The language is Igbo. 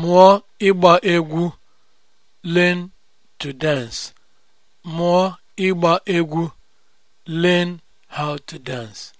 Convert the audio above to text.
mụọ ịgba egwu learn to dance mụọ ịgba egwu learn how to dance